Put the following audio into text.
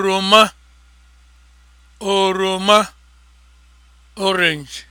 oroma oroma orange